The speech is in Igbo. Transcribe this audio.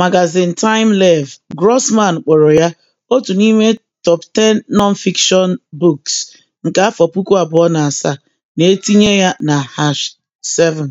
Magazin time TimeLev, Grossman kpọrọ ya "otu n'ime Top Ten Non-Fiction Books nke afọ puku abụọ na asaa" na-etinye ya na #7.